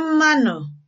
mmanụ